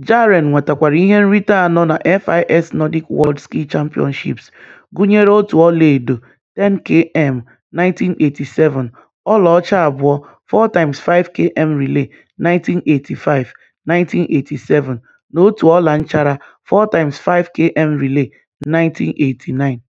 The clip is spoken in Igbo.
Jaren nwetakwara ihe nrite anọ na FIS Nordic World Ski Championships, gụnyere otu ọlaedo (10km, 1987), ọlaọcha abụọ (4x5km relay, 1985, 1987) na otu ọla nchara (4x5km relay, 1989).